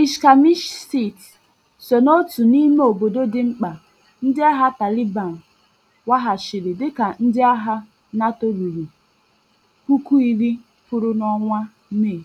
Ishkamishkeit so n'otu n'ime obodo dị mkpa ndị agha Taliban waghachiri dịka ndị agha NATO ruru iri pụrụ n'ọnwa Mee.